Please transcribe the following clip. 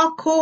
ọkụ